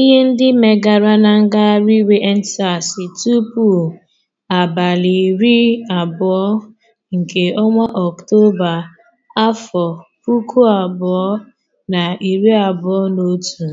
ihe ndị megara na ngagharị iwe EndSARS tupu abalị iri abụọ nke ọnwa Ọktoba afọ puku abụọ na iri abụọ na otu.